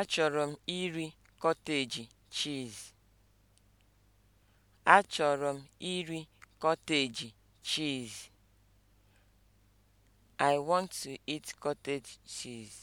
Achọrọ m iri cottage cheese. Achọrọ m iri cottage cheese. I want to eat cottage cheese.